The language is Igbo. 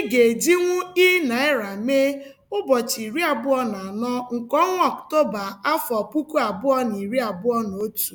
Ị ga-ejinwu i naịra mee ụbọchị iri abụọ na anọ nke ọnwa Ọktoba afọ puku abụọ na iri abụọ na otu.